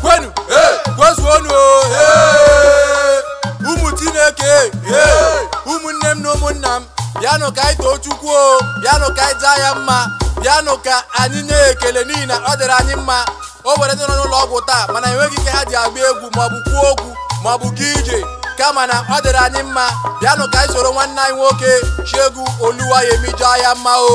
kwenu kwezuonu ụmụ Chineke ụmụnne m na ụmụnna m bịanụ ka anyị too Chukwu o bịanụ ka anyị jaa ya mma bịanụ ka anyị nye ekele n'ihi na ọ dịrị anyị mma o were ndị n'ụlọ ọgwụ taa mana enweghị ike ha ji agba egwu maọbụ kwuo okwu maọbụ ga ije kama na ọ dịrị anyị mma bịanụ ka anyị soro nwanne anyị nwoke Shegu Oluwayemi jaa ya mma o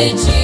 did you?